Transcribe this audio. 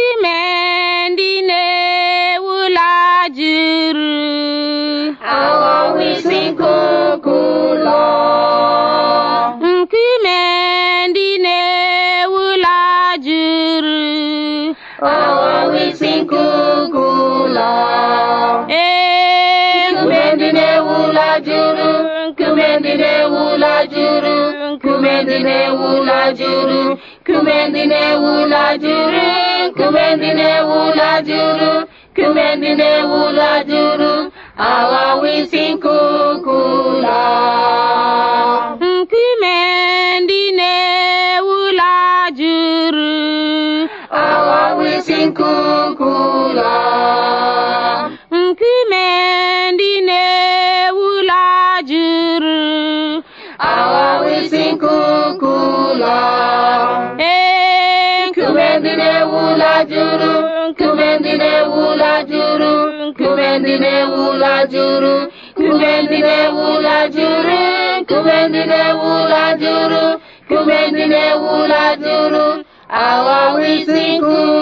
ime ndị na juru aghọwo isi nkuku ụlọ eh, nkume ndị na-ewu juru aghọwo isi nkuku ụlọ ee nkume ndị na-ewu juru nkume ndị na juru nkume wula na-ewu ụlọ juru nkume wula. na ndị na-ewu ụlọ juru kume ndị na-ewu ụlọ juru aghawa isi nkuku ụlọ nkume ndị na-ewu ụlọ juru aghawa isi nkuku ndị na-ewu ụlọ juru nkume ndị na-ewu ụlọ juru nkume ndị na-ewu ụlọ juru nkume ndị na-ewu ụlọ juru nkume ndị na-ewu ụlọ juru nkume ndị na-ewu ụlọ juru aghọwo isi nkụ